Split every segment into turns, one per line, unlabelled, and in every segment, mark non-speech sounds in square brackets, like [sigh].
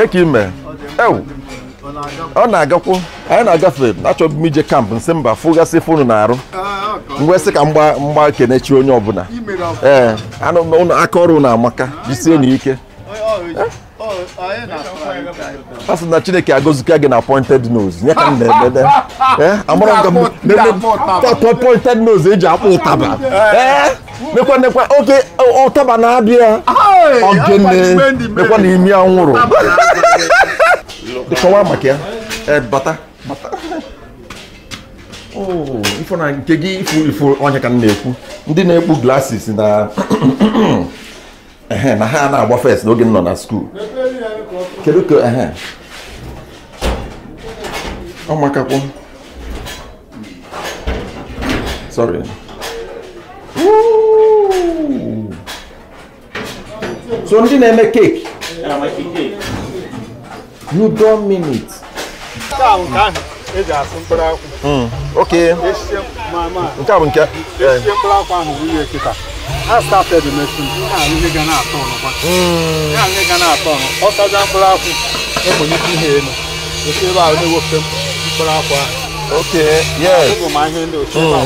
kee ka ime ọ na-agakwu anyị na-agafe achọbụ m ije kampụ nsị mba fụgasị fonu na-arụ mgwesị ka mgba kenechi onye ọbụla ee anụ aka ọrụ na-amaka jisie n'ike e? a sị na chineke agọzika gị na pointed nose nye ka m na-emede amara m ka m pointed nose eji e akpụ ụtaba e? mekwa oge oke ụtaba na abịa ya ogene mekwa na imi anwụrụ kọwaa maka ya eh, eh, bata oh, ifo na nke gị ifu ifu onye ka m na-ekwu ndị na-ekpu glasis na na ha na-agba fes n'oge m nọ na skuul kedu ka ehe ọmakakwọ sorry so ndị na-eme keki you mean it. nke a bụ nke mkpụrụ akwụ kịta ha
started the machine ya hmm. ihe ga na-atọ ọnụ ọ saja mkpụrụ akwụ e elu esi na-ewepụta mkpụrụ akwụ ahụ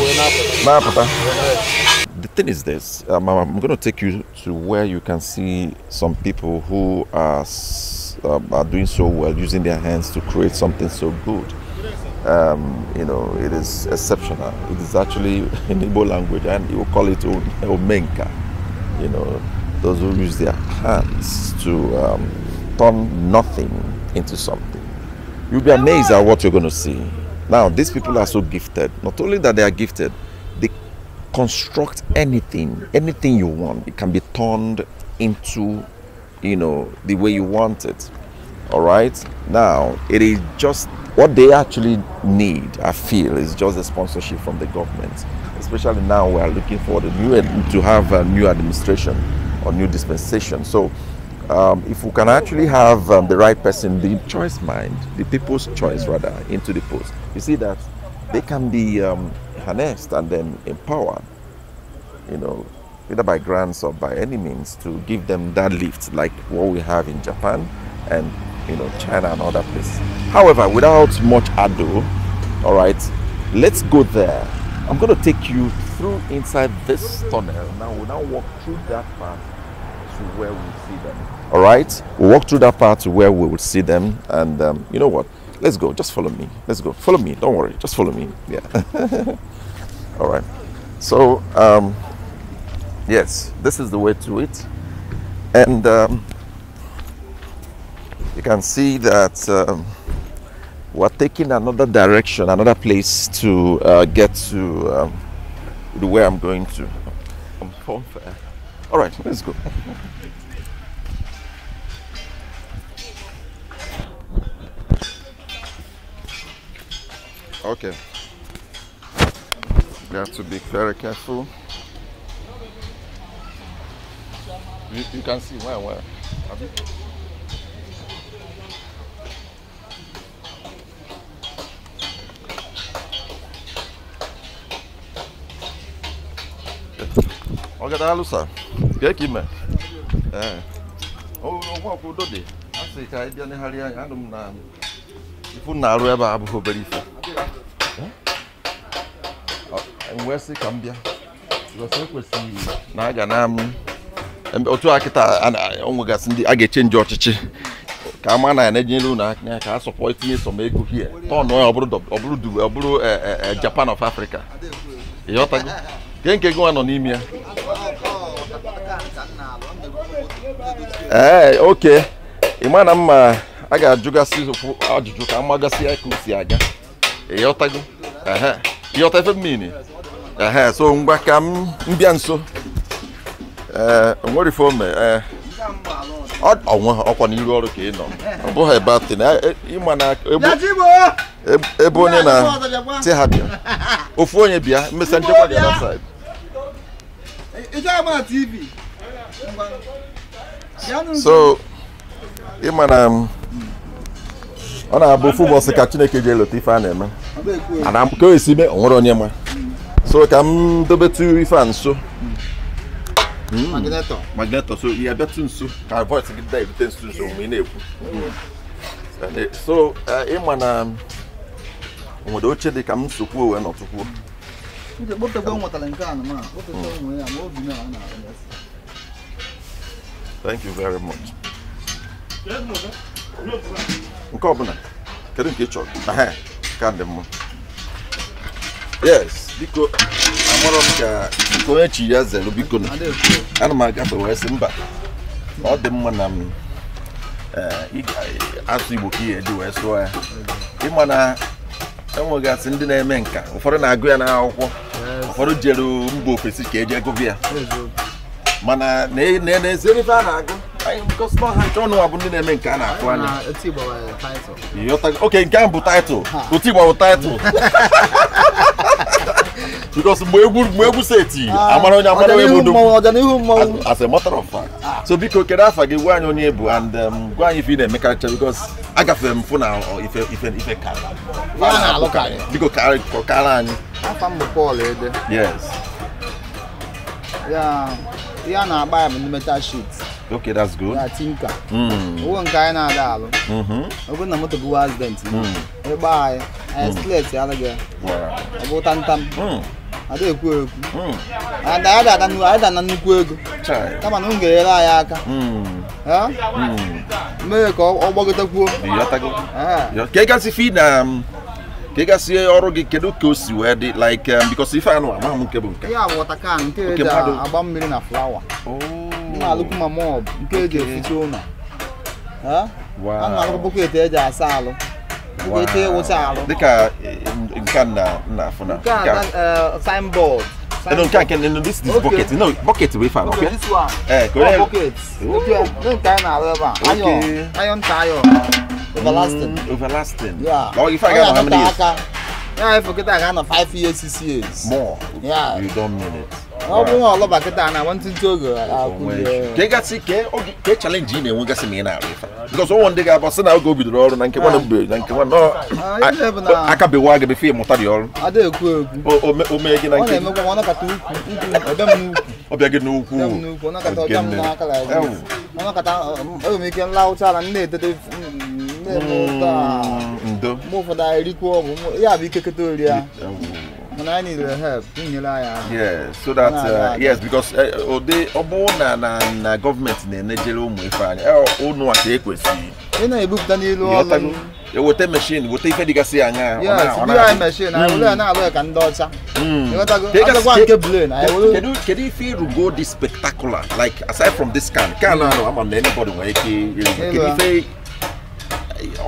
yes
the thing is this um, I'm, going to take you to where you can see some people who are, um, are doing so well using their hands to create something so good. Um, you know, it is exceptional. It is actually [laughs] in Igbo language, and you will call it omenka. You know, those who use their hands to um, turn nothing into something. You'll be amazed at what you're going to see. Now, these people are so gifted. Not only that they are gifted, they construct anything, anything you want. It can be turned into, you know, the way you want it. All right. Now, it is just what they actually need, I feel, is just the sponsorship from the government. Especially now, we are looking for the new to have a new administration or new dispensation. So, um, if we can actually have um, the right person, the choice mind, the people's choice rather, into the post, you see that they can be. Um, harnessed and then empowered, you know, either by grants or by any means to give them that lift like what we have in Japan and you know China and other places. However, without much ado, all right, let's go there. I'm going to take you through inside this tunnel. Now we'll now walk through that part to where we see them. All right, we'll walk through that part to where we will see them, and um, you know what? Let's go. Just follow me. Let's go. Follow me. Don't worry. Just follow me. Yeah. [laughs] All right. So, um, yes, this is the way to it. And um, you can see that um, we're taking another direction, another place to uh, get to um, the way I'm going to. I'm All right, let's go. [laughs] Okay. we have to be very careful. You, you can see where, where. Have you? ọgada alụsa ka ime ee o nwa ọkwụ udo dị a sị ka ị bịa negharị anya anụ m na ifu na-arụ ebe a abụghị obere ife wee sị ka m bịa ekwesịghị na a ga na otu a kịta onwegasị ndị a ga-echenji ọchịchị ka ma na ya na-ejinyere ka aka ka a sọpọ itinye sọm ego hie tọn onye ọ bụrụ e, e, e, Japan of Africa nwa nọ a ga-ajụgasị ajụjụ ka amagasị ya ka o si aga ịghọtago ịghọta ife mmiri ehe so ngwa ka m bịa nso e, onwere ife ome ee onwe ọkwa n'iru ọrụ ka ị nọ ọ bụghị ebe atị na e, ịma na
e
ebe onye na ti ha bịa ofu onye bịa mmesa nchekwa dị na saịd so ịma na ọ na-abụ ofu ka chineke ji elota ife a na-eme ana ka o esi mee onwere onye ma so ka m dobetu ife a nso hmm. so ya nso ka nso nso na-ekwu so eh, ịma na nwere oche dị ka m sokwuo wee nọtụkwuo Thank you very much. nke ọbụla kedu nke ị chọrọ ka ndị mụ yes biko amarọ m ka biko onye chi ya zere biko na ana m agafe wee sị mba ọ dị mma na m asụ igbo ka ihe eji wee sụọ ya ịma na enwegasị ndị na-eme nka ụfọdụ na-agụ ya n'akwụkwọ ụfọdụ jere mba ofesi ka eji agụbịa mana na-ezerife a na-agụ because now I don't know about the uh, name Ghana. Ghana. It's about title. You talk okay Ghana title. It's about title. [laughs] because mwegu mwegu seti amara onye amara onye mudu ọganihu mmanwụ as a matter of fact ah. so biko kedu afa gị gwa anyị onye bụ and gwa anyị ife ị na-emekarịcha because agafere m fụ na ife ife ife karịa biko kọkara anyị
afa m bụ Paul Ede eh, yes ya na-agba ya bụ n'ime sheet
Okay, that's good. Na tinka. Mm.
Uwe nke anyị na-adaalụ. Ọ bụrụ na moto bụ accident. Ịgba anyị, anyị slet ya alụghị ya. Ọ bụ tantam. Ada ekwu ekwu. Ada ada ada nnukwu ada na nnukwu ego. Kama na m ga-enyere anyị aka. Mee ka ọ gbọgotekwuo.
Ka ị gasị fi na ka ị gasị ọrụ gị kedu ka o si wee dị like um, because ife anụ amaghị m nke bụ nke.
Ya bụ ọtakan nke eji agba mmiri na flawa na. alụkwụ ma mọb nke eji eficha ụlọ a na-alụkwụ etu eji asa alụ
etu ịwụcha e alụ dịka eh, nke a na-afụ na nke a
eh, signboard eh, No, no, can
can no, this this okay. bucket. No, bucket we found. Okay. okay. This one. Eh, correct. Oh, bucket. Okay.
No, can na rubber. Okay. Iron, iron tire. Mm,
overlasting. Mm, overlasting. Yeah. Oh, you forget how many years?
Yeah, I forget I got five years, six years. More. Yeah.
You don't mean it. ọ
nwa ọlọba kịta na nwantịntị oge
ka ị gasị ka e, e chalenji ị na-enwegasị ma ị na-arụ ife bikọs ndị ga-abụ na oge o bidoro ọrụ na nke nwana ah. mbe na nke nwana ah, akabewa gị befe ịmụta dị ọrụ o gị na nke ọ gị n'ukwu ndo
ya bụ ikekọta ori And I need your help. Yeah,
so that uh, yes, because uh, ode obo na na na government na enejele ụmụ ife anyị. Ọ ụnụ aka ekwesị. Ị na-ebupụta n'elu ọrụ. Eweta machine, weta ife dịgasị anya. Yes, biri anyị machine, anyị were na-alụ ka ndị ọcha. Ịghọtago nke blane. Kedu kedu ife ịrụgo dị spectacular like aside from this can can ahụ ama m na anybody nwere ike ịrụgo kedu ife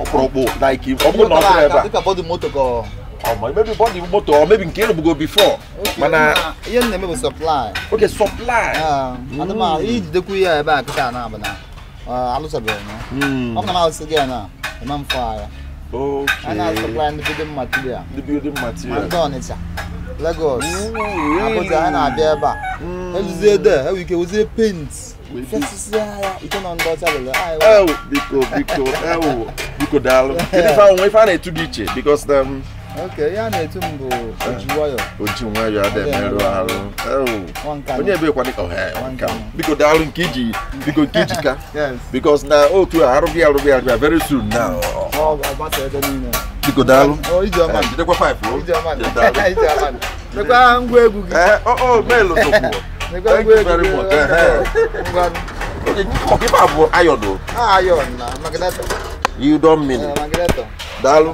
ọkpụrụkpụ like ọ bụrụ na ọ bụrụ ebe a or maybe bought the or maybe Caleb go before. Okay. Mana yẹn na maybe supply. Okay, supply. Yeah.
Ano ma each the kuya ebe na bana. Uh, alu sabe no. Hmm. Ọkọ na ọsọ gẹ na. Ẹ ma n fa ya. Okay. Ana supply the building material. The building material. Ma dọ̀ n'ịcha. Lagos. Abụja ha na-abịa ebe a. Ezuzie de, enwe ike wezie paint. biko,
biko, biko daalụ. [laughs] Ife ahụ, ife a na-etu dị iche, because um,
Okay, ya na-etu m bụ
Ojiwayọ. Ojiwayọ adị emerụ ahụ. Onye ebe kwado ka ọha biko daalụ nke iji biko nke iji ka. Because na otu a arụghị arụghị arụghị very soon now. Biko daalụ. Jidekwa pipe o. Nekwa ngwa egwu gị. O meelụ sokwu. Nekwa ngwa egwu gị. Ọkịpa bụ ayọdụ. Ayọdụ na magneto. You don mean it. Magneto. Daalụ.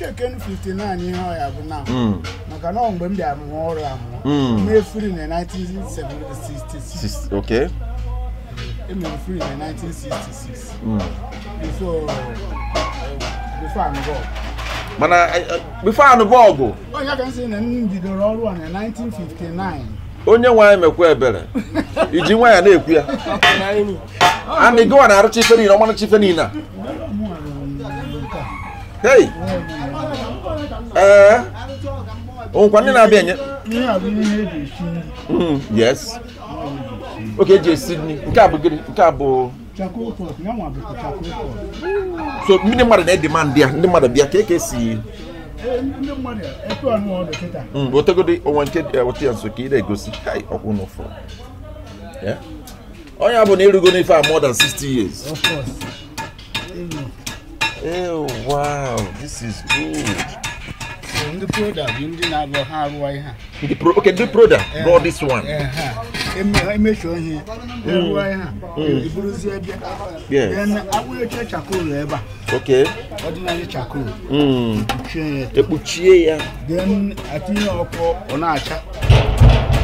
cheken 59 ihe ọya bụ na maka na mgbe m bịara mụọ ọrụ amụọ mefiri na 1966 emere firi na 1966 before uh, before I'm gone
mana bifo anụ bọọgụ
onye ka nsị na m bidoro ọrụ a na 1959
onye nwaanyị mekwa ebere iji nwa ya na-ekwu ya
[laughs]
ana ịgụwa na-arụcha ife niile ọmarụcha ife niile a hei Oh, when na abịa nye. Mm, yes. Okay, je Sydney. Nke a bụ gịnị? Nke a bụ So no matter the demand ya, ndị mmadụ bịa ka eke e si e,
ndị mmadụ etu anụ ọdụ kịta.
Mm, otegodi What nke answer? Eh, ya nso ka ị na-egosi kai ọkwụ n'ụfọ. Yeah. Onye a bụ na ịrụgo n'ife more than sixty years. Of course. Ew, eh, wow, this is good.
ndị proda bụ ndị na agụ ha arụwa ihe
ndị pro okay ndị proda brought eh, this one
emechuo ihe arụwa ihe iburuzie bịa then awụnyecha chakol ebe a okay ọdịnala chakol
ekpuchie mm. ya ekpuchie ya den atinye ọkụ ọ na-acha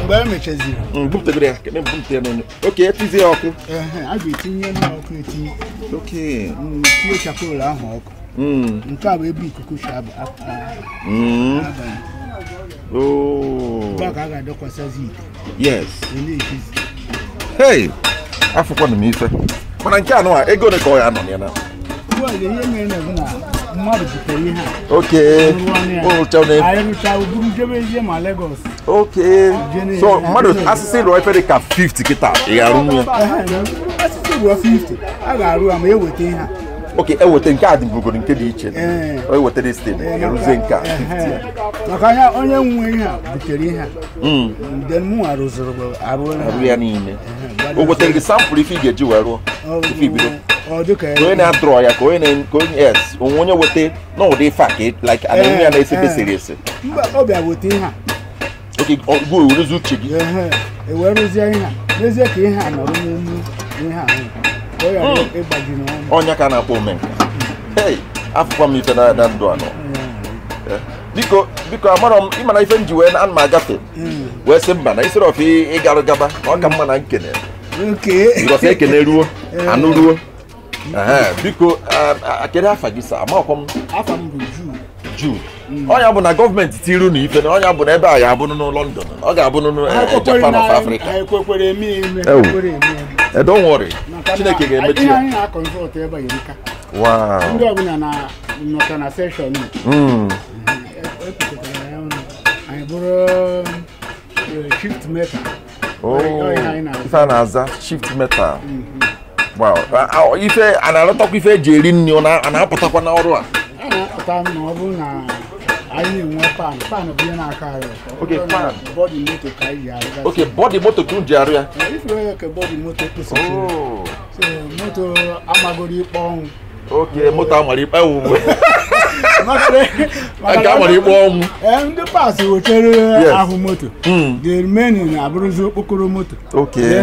mgbe e mechaziri mm, bupụtagoro ya kebe bupụta ya n'onye oke etizie ọkụ eh,
a ga-etinye n'ọkụ etinye oke mm, tinye chakol ahụ ọkụ Mm. ntu a bɛbi kuku hyɛ aba
mm. aban baka
oh. aga dɔ kɔsa zik
yes ɛne ɛfi e hey afɔkɔ ne mi fɛ mana nkyɛn ano a ego ne kɔɔ yɛ anɔ nea na
wa de yɛ mɛ na bena mmadụ butere ihe
a okay ụrụcha ne
ayịrụcha uburu jebe ihe ma lagos okay
so mmadụ asịsị rụọ efere ka 50 kịta ị ga-arụ nwa
asịsị rụọ 50 a ga-arụ ya ma eweta ihe a
oke eweta nke a dị mbụgoro nke dị iche na steeti eruzie nke a eh, eh, eh.
maka ya onye nwe ihe a butere ihe a hmm. arụ ya
niile o wetara gị sampụl ife ị ga-eji wee rụọ ife ibido onye na-adrọ ya ka onye na-atụrụ ka onye es onwe onye weta n'ụdị ife a ka like ana enwe ya na-esepe siri ese
oke gụ ewerezi uche gị
e
rụzie ihe a n'ezie ka ihe a nọrọ n'elu ihe a hmm. ịgbaji
ọnya ka a na-akpọ omenka ei afụkwa m ife na ndụ anọ eh, biko biko amarọ m ịmana ife m ji wee ana agafe hmm. wee sị mba na isoro ọf ịgarụ gaba na ọ ka mma na nkene ịrọsa ekene ruo eh. anụ ruo eh, biko kedu afa gị sa amaọkwa m jude hmm. ọnya bụ na gọọmenti tiru na ife na ọnya bụ na ebe a ya abụnụ n'ụlọ London ọ ga-abụnụ Japan of Africa Eh, don't worry chineke ga-emechi ya na a aza hmm. eh, eh, shift metal ife a na-alọtakwa ife eji eri nri ọ na-apụtakwa n'ọrụ a
na-enwe pan na-aka na
bodi moto ka anyị ga bodi moto ka ji arịa ifere ka moto kpụsịchiri moto amagoro ikpe ọnwụ moto ọnwụ
ndị paasị ahụ moto the remaining na-abụrụzi uh, okpokoro moto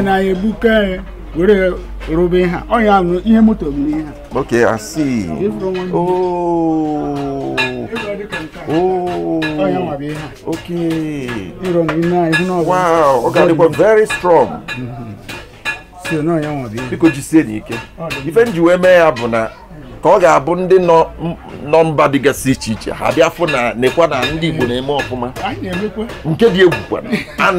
na ya ebuka ya were rụba ihe ọnya ihe moto bụ ihe
Ok, asị uh,
uh, ooo oh, Oh, oh, oh okay. Wow,
very strong. Mm-hmm. Biko jisie n'ike. Oh, Ife nji wee mee ya bụ na ka ọ ga-abụ ndị nọ mba dịgasị iche iche ha bịa fụ na nekwa na ndị Igbo na-eme ọfụma nke dị egwu kwana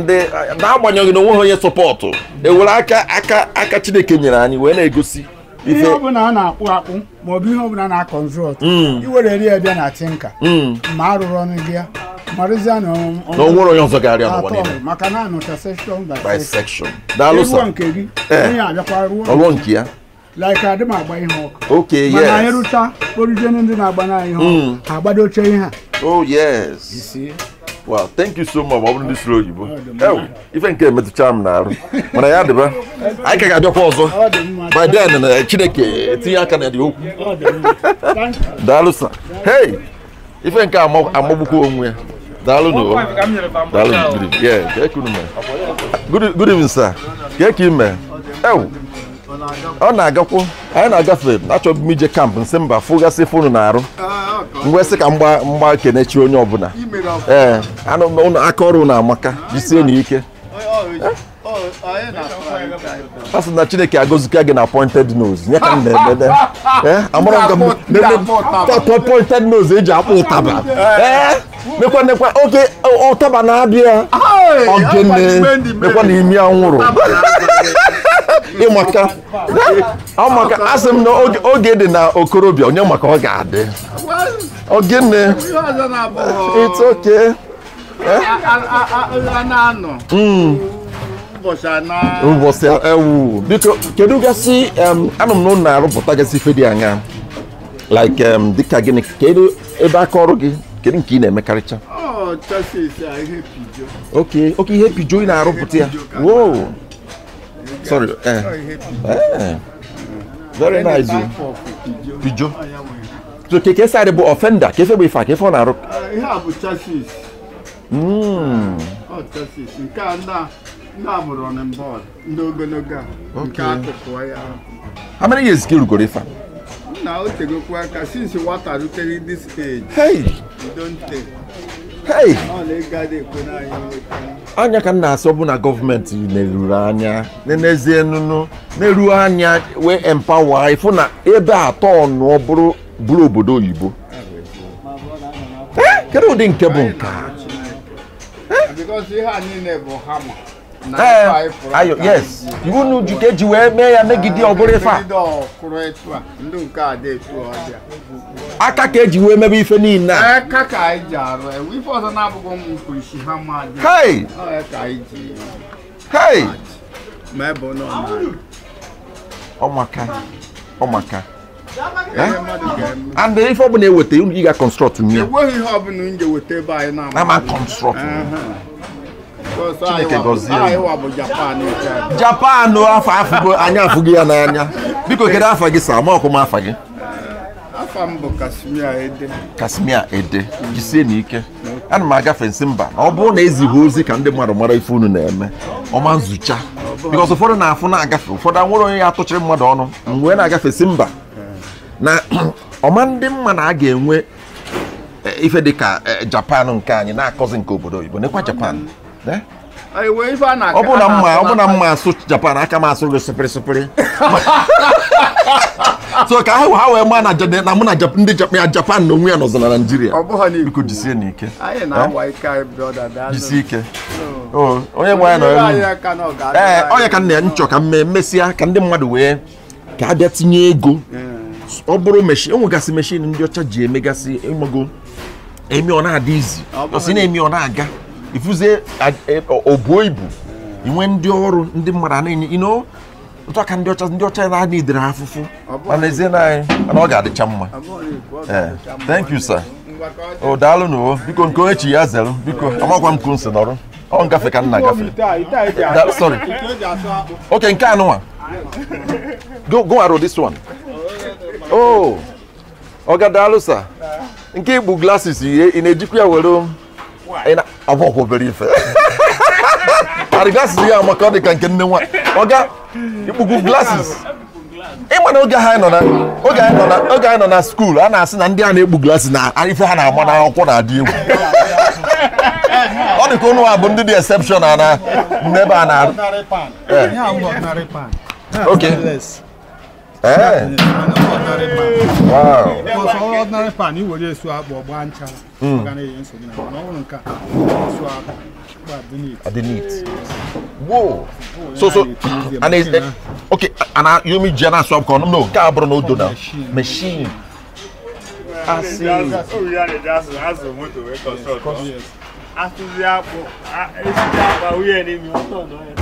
na eh, agbanyeghị na onwe onye sọpọtụ ewere aka aka aka Chineke nyere anyị wee na-egosi ihe
ọbụla a na-akpụ akpụ ma ọ bụ ihe ọbụla na-akọnzọt mm. iwere ri ya bịa na tinka mm. ma arụrụ ọnụ gị ya marụzie na onwere onye ọzọ ga-arịa n'ụwa niile maka na anọcha sekshọn by
sekshọn daalụ sa nke gị eh. onye
abịakwa ruo nke ya like adị m agba ihe ọkụ
ok yes mana anyị
rụcha kporije ndị na-agba na ihe ọkụ mm. ha agbadoche ihe a
oh yes Well, thank you so much. I want to slow you. Oh, even came to charm now. When I had the
I can get your pause.
By then, and I chideke, Tia can at you. Dalusa. Hey, even come up, I'm over home. Dalu no. Dalu, yeah, good evening. sir. Good evening, sir. Yeah, Kim, man. Oh. ọ na-agakwu anyị na-agafe achọbụ m ije kampụ nsị mba fụgasị fonu na-arụ ngwesị ah, ka mgba mgba kenechi onye ọbụla ee anụ aka ọrụ na-amaka jisie na ike asị na chineke agọzika gị na pointed nose nye ka m na-emede [laughs] pointed nose eji e akpọ ụtaba mekwa nekwa oge ụtaba na-abịa ogene mekwa na imi anwụrụ Ị ọ amaka asị m na oge dị na okorobịa onye maka ọ ga-adị ogene it's okay eh? ụbọchị ewu biko kedu gasị anụ m n'ụlọ na-arụpụta gasị ife dị anya like dịka gịnị kedu ebe aka ọrụ gị kedu nke ị na-emekarịcha oke oh, oke ihe pijo ị na-arụpụta ya wow sorry eh oh, eh very nice o pijo oh, so keke sáré bu ọfẹnda kefe bu ifa kefe ọ na
ihe a bụ chasis.
ọ
chasis nke a na na bụ running board ndị ogologo a nke akụkụ ya.
how many years ka irugoro ifa.
nna o tegokwa aka since nwata rutere this age. hey. you don take.
anya ka m na-asị bụ na gọọmenti na-eruru anya na-enezie nụnụ na anya wee empawa ịfụ na ebe atọ ọnụ bụrụ bụrụ obodo oyibo eh, kedu ụdị nke bụ nke
a eh? Eh, ayo yes
iwunu jikeji wee mee ya megide ọgụrịfa aka oh, eh, ka eji wee mebe ife niile a hei hei ọmaka ọmaka and ife ọbụla eweta unu ị ga-construct nye
ama construct nye
chineke gọzie japan afọ afụgo anyị afụgo ya n'anya biko kedu afa gị sa ma ọkụma afọ gị
afọ m bụ kasimia ede
kasimia ede jisie n'ike ana m agafe nsị mba na ọ bụrụ na ezighi ozi ka ndị mmadụ mara ife unu na-eme ọma nzucha bikọs ụfọdụ na-afụ na-agafe ụfọdụ anwụrụ onye ya atụchiri mmadụ ọnụ mgbe na-agafe si mba na [clears throat] ọma ndị mma na a ga-enwe eh, ife dị ka eh, japan nke anyị na-akọzi nke obodo oyibo nekwa japan Eh?
ọ bụ na mma ọ bụ na
mma asụ japan aka m asụ gị sịpịrịsịpịrị [laughs] so ka ha ha wee maa na mụ na ndị japan na onwe ya nọzọ na naijiria biko jisie n'ike
eh? jisie ike
oh. Oh, onye nwe ya nọ ee eh, onye ka nna ya nchọ ka mmee mesịa ka ndị mmadụ wee ka abịa tinye ego ọ bụrụ meshin enwegasị meshin ndị ọcha ji emegasị ịmago emi ọ na-adị izi ọsi na-emi ọ na-aga ifuzie e, obuo ibu inwe ndị ọrụ ndị mmadụ na-enye ino ntụaka ndị ọcha ndị ọcha na-adị idere afụfụ mana ezie na anyị mana ọ ga-adịcha mma thank you sir o daalụ n'o biko nke echi ya zelụ biko amakwa m ka nsi n'ọrụ ọ ngafe ka nna na-agafe sorry
oke nke anụnwa
go go arụ this one oh ọ ga daalụ sa. nke igbu glasses ị na-ejikwa ya were ọ bụ ọkwa obere ife arigasị ya maka ọ dị ka nke nne nwa ọga ikpuku glasis ịma na oge anyị nọ na skuul a na-asị na ndị a na-ekpu glasis na ife ha na-agba n'akwụkwọ na-adị egwu ọ dị ka ụnụ a bụ ndị dị exception na n'ebe a na-arụ Eh. Wow.
Because all ordinary pan you will swap or bancha. I
didn't eat. Whoa. So so and is uh, okay and uh, you mean Jenna swap con no cabro no do now. Machine.
I see. That's what we are that's that's the motor record. After the apple, I see the apple we are in the motor.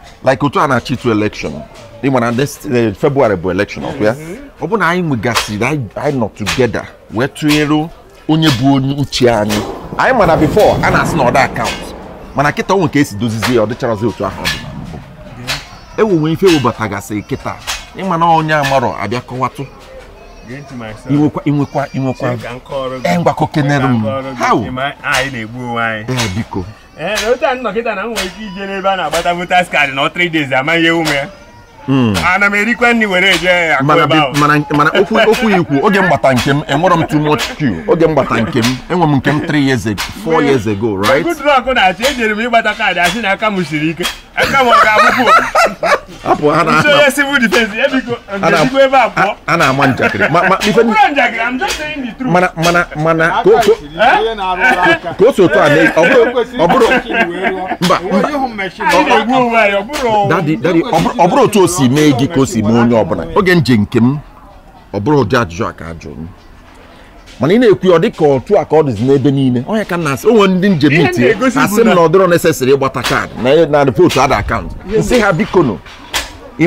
like otu a na-achị to election ịma na february bụ election ọkụ ya ọ bụ na anyị nwegasịrị anyị nọ togeda wee tụnyere onye bụ onye uche anyị anyị mana bifo a na-asị na ọda akaụntụ mana kịta onwe ka esi dozizie ya ọ dịcharazi otu ahụ ọ dị na mbụ enwewe ife ewebatagasị kịta ịma na onye amarọ abịa kọwatụ inwekwa inwekwa eh, ngwakọ kenere
eh, biko Eh, otu nnọkịta na m nwere ike ije n'ebe a na-agbata votas kaadị na 3 days amaghị ihe ume ya hmm. ana m erikwa nri were eje
mana okwu ikwu oge mgbata nke m enwere m too much q oge mgbata nke m enwe m nke m 3 years ago 4 years ago right good
luck na-achị ejere m ịgbata kaadị asị na aka m siri ike ɛka wɔn ka abubu
apɔ ana ama nso
yɛ civil defence ebi ko ndesi ko ebe apɔ
ana ama njakiri ma ma nipa ni
njakiri i'm just saying the truth mana
mana mana ko ko ko so to ane ɔburo ɔburo mba mba dadi dadi ɔburo to si meegi ko si mu onye ɔbuna oge nje nkem ɔburo di ajụjụ aka ajụ m. mana ị na-ekwu ọ dị ka otu a ka ọ dịzi n'ebe niile onye ka na-asị onwe ndị njem itie asị m na ọ dịrọ ịgbata kaadị na ripootu ada akaụntụ nsị ha bikono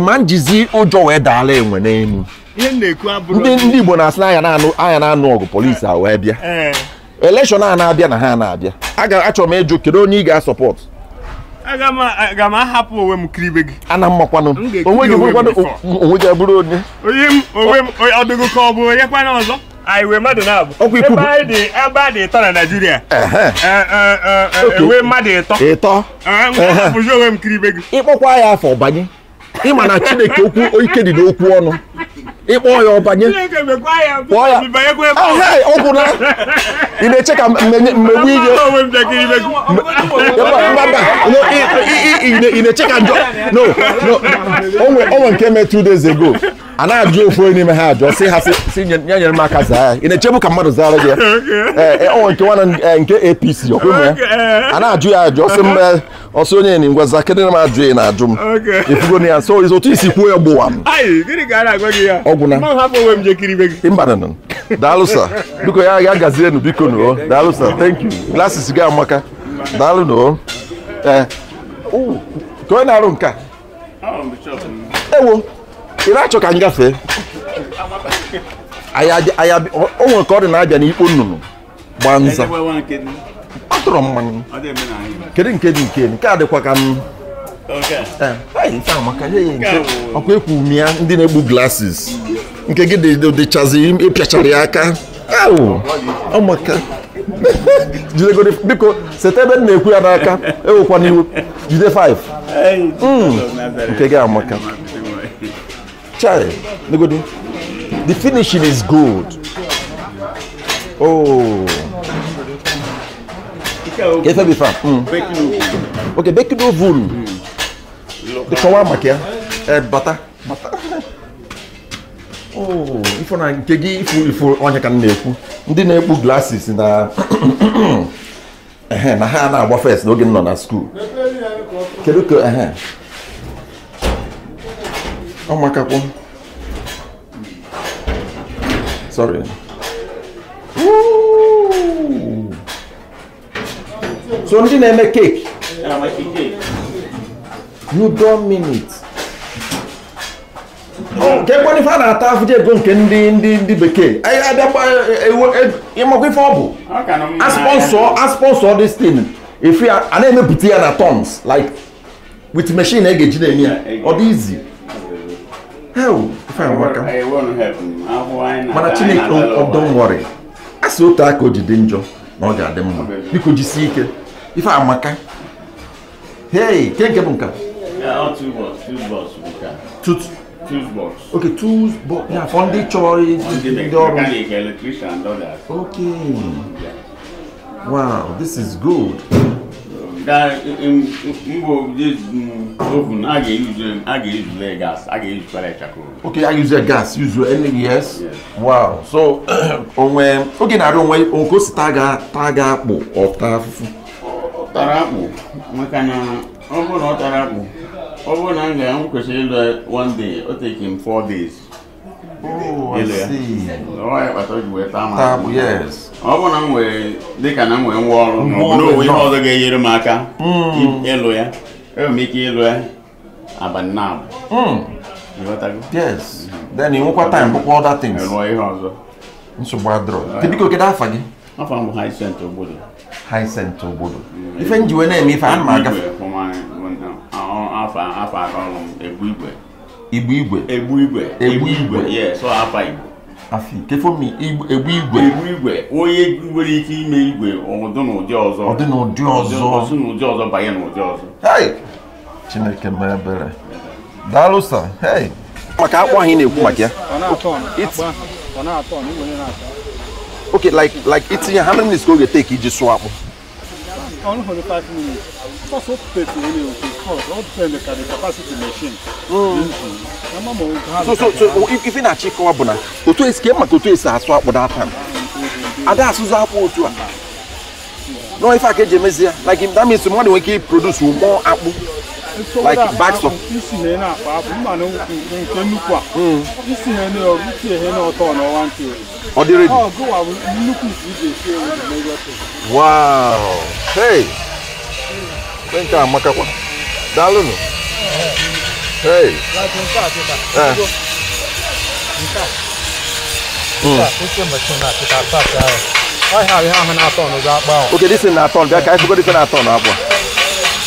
ma njizi ụjọ wee daala enwe n'elu ndị ndị Igbo na-asị na anya na-anụ ọgụ polisi a wee bịa elekshọn a na-abịa na ha na-abịa ga-achọ m ịjụ kedu onye ị ga-asọpọtụ
aga m ahapụ onwe m
kribe gị ana mmakwanụ onwe gị bụrụ onye
ọdụgụ ka ọ bụ onye kwana ọzọ anyị mmadụ na-abụ ebe a dị ịtọ na Naịjirịa
ewee mmadụ ịtọ ịtọ bụzi onwe m kiri ibe gị ịkpọkwa ya afọ banye ịma na Chineke okwu ike dị n'okwu ọnụ ịkpọ ya ọbanye kpọọ ya ọgwụ na ị na-eche ka mmegbu ihe ị na-eche ka njọ no no onwe nke me two days ago a na-ajụ ofu onye n'ime ha ajụ sị ha si nye nyere m aka zaa ị na-echebu ka mmadụ zara gị ọnwa nke nwana nke apc ọkwụmụ ya a na-ajụ ya ajụ ọsị m ọsị onye na ngwa zaa kedụ na m ajụ ya na-ajụ m ifugo ya so otu isi kwuo ya gbụwa m ọgwụ na mbananụ daalụsa biko ya ya gazienu biko noo daalụsa thank you glasses gị amaka daalụ noo ee ka onye na-arụ nka ewo ị na-achọ ka m gafee o nwere ka ọ dị na-abịa n'ikpo nnụnụ gbaa nza ọ tụrụ mmanụ kedu nke dị nke nke a dịkwa ka m e, e, ọkwa ekwu ume ya ndị na-egbu glasses nke gị dịchazi ịpịachara ya aka e, ọmaka [laughs] biko seta ebe m na-ekwu ya n'aka ewekwana iwe jide 5 hmm. nke gị amaka Chai, the finishing is good. Oh. Yes, I'll be fine. Mm. Okay, bake oven. Mm. The shawarma here. Uh, eh, butter. Butter. [laughs] Oh, if you want to give you onye ka na-ekwu ndị na-ekpu glasses na [coughs] ehe na ha na-agba first n'oge m nọ na school Can you go? ehe Oh my god. Sorry. Ooh. So ndị na-eme cake.
cake.
You don't mean it. nke mkpọrịfa a na-ata afụje ego nke ndị ndị ndị bekee abịakwa ịmakwa ife ọ bụ asponsọ asponsọ this thing ife a na-emepụta ya na tons like with machine a ga-eji na-eme ya ọ hell fine waka
mana chineke oh,
don't worry a sị otu aka o ji dị njọ na ọ ga-adị mma biko jisie ike ife amaka hey ke nke bụ nka oke afọ
ndị chọrọ ndị ọrụ okay
wow this is good
that Igbo this oven, I can use them, I can use their gas, I can use pellet charcoal.
Okay, I use their gas, use your energy, yes? yes. Wow. So, [clears throat] on when, okay, now don't wait, on goes taga, taga po, or tafu.
Tarapu, makana, obo no tarapu. Obo nanga, I'm going kwesiri one day, it'll take him four days. Oh, I see. Oh, I thought you were tamu. Tamu, yes. ọ bụ na m nwere dịka na m nwere ngwa ọrụ n'owe ihe ọzọ ga-enyere m aka ịlụ hmm. ya enwere m ike ịlụ ya abalị na hmm. hmm. nwekwa time bụkwa
other things ọzọ nsogbu adịrọ biko kedu afa gị afọ m bụ Hyacinth Ogbodo Hyacinth ife njiwe na-eme ife
igwe igbu igwe egbu igwe egbu igwe Afi Kefomi egbu igwe egbu igwe onye nwere ike ime igwe ọdụ na ụdị ọzọ ọdụ na ụdị ọzọ ọdụ na ụdị ọzọ banye na ụdị ọzọ hey
Chineke mee ebere daalụ sa maka akpụ ahụ ị na-ekwu maka ya okay like like itinye how many minutes ka oge take iji sụọ akpụ
only 45 minutes. That's so petty anyway, because all depends on the capacity machine. Mm. Mm. So, so, so oh, if,
if in a chick or bona, to two is came to two is a swap with that time. And that's who's up to No, if I get Jamesia, like him, that means the money we keep produce more apple like bags of.
isi hɛn na paa bu ma ne nke nnukwu a. isi hɛn na ɔ isi hɛn na ɔtɔ na ɔwa nti. ɔdi redi. ɔ go wa nnukwu si de si ewu di na ɛyɛ to.
wow hey nke amaka kwa daalụ nụ hey. Eh. Hmm. Hmm. Okay, this is not on. I forgot this is not on.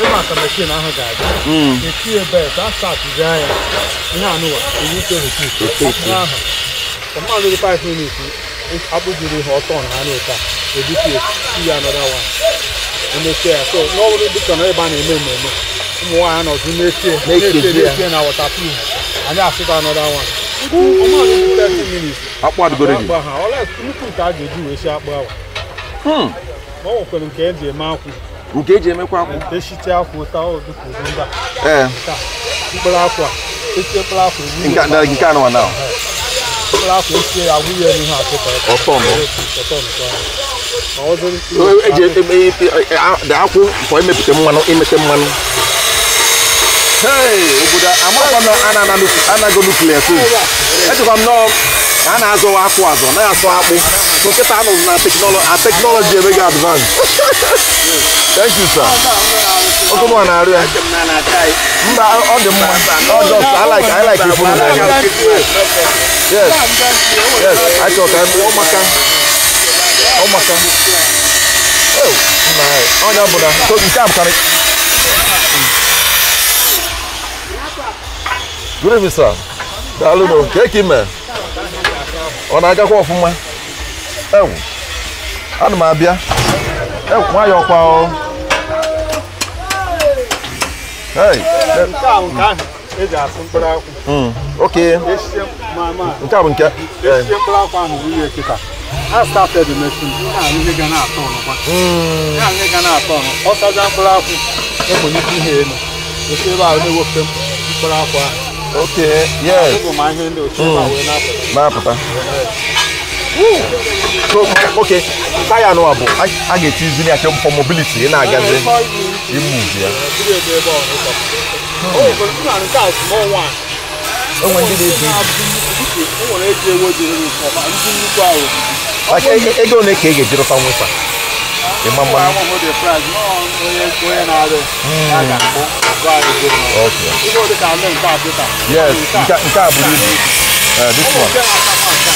ịma ka mechin ahụ ga-aga etinye bet asatụzi anya ihe anụwa ahụ mmadụ dị 5 minutes akpụjiri ihe ọtọ na anụ ụta ebipie ya anọda wa emechie ya so n'ọbụrụ dịka na ebe a na-eme mmemme ụmụ nwaanyị nọzi na-etie na wọtapin anyị asịta anọda wa akpụ adịgoro gị ọla nnukwu nke a ga-eji wee si akpụ awa ọ nwekwere nke e ji eme akwụ nke eji emekwa akwa ee mkpụrụ akwa a nke mkpụrụ akwa ya
ọtọ akwụ kwa emepụta mmanụ imete mmanụ obodo amakwa na ejikwa m nọọ a na-azọwa akwụ azọ naghị asọ akpụ nkịta anụrụ na teknọlọji emeghị Thank you, sir. Oh, come on, Aria.
Mba, all the mma. All just, I like, I like people.
Yes. Yes. I thought I'm Omaka. Omaka. Oh, my. Oh, no, Buddha. So you can't come. Good evening, sir. Daalụ nụ, ka eke ime? Ọ na-agakwa ọfụma? Ewu, ana m abịa. Ewu, nwayọọ kwa o. Hai. Nka nka e ji asụ mkpụrụ akwụ. Okay. Esi
mama. Nke a bụ nke. Esi mkpụrụ akwụ ahụ wụnye está I started the machine. Ihe a ndị ga na-atọ ọnụkwa. Ihe a o ga na-atọ ọnụ. Ọ saja mkpụrụ akwụ. Ekwenye ihe elu. Esi ebe ahụ na Okay. Yes. Ọ bụ ma ihe ndị
na-apụta. Hum. okay taya nụwa bụ a ga-etizi na ya for mobility ị na-agazi imuvi ya
onwe ndị na-ebi ego ole
ka ị ga-eji rụta nwụsa ịma mma yes nke a bụrụ ibu this
one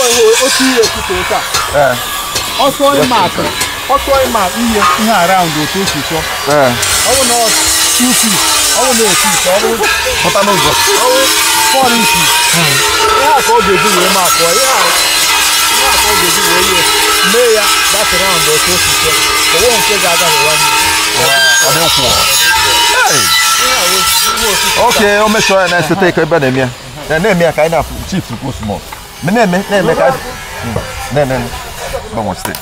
ọrụ ihe otu ihe kwute ụka ọsọ ịma atụ ọsọ ịma ihe ihe araụndụ otu otu sọ ọwụ na
two feet ọwụ na otu ite ọwụ pụta n'ụzọ ọwụ four inches ihe a ka ọ ga-eji wee ma akpọ ihe
a ihe a ka ọ ga-eji wee ihe mee ya that round otu otu sọ ọwụ nke ga-aga n'ụwa n'ihu
Okay, o mechọọ ya na-eseta ike ebe na-eme ya na-eme ya ka anyị na chief kwụ small me ne me ne me ka hmm. ne ne ba mo stay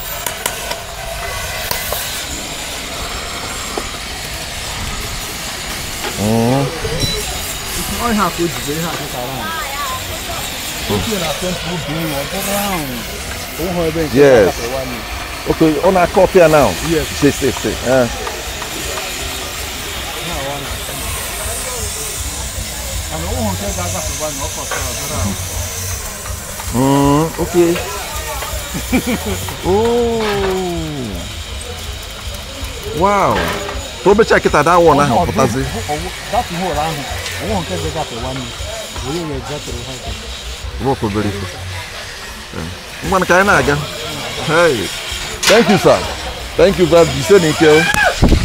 Mm.
Olha a coisa de ver,
caralho. Yes.
Okay, on a copy now. Yes. Stay, stay, stay. Uh. Mm -hmm. Hmm, okay. [laughs] oh. Wow. Probe check it at that one ahụ pụtazi.
That hole ahụ, onwe nke zegafe one onye wee zegafe ha ka.
Rope obere ife. Ngwanụ ka anyị na-aga. Hey. Thank you sir. Thank you brother. Jise n'ike.